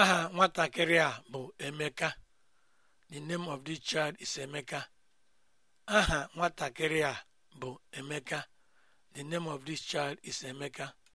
aha nwatakịrị a bụ emeka the name of this child is emeka child is emeka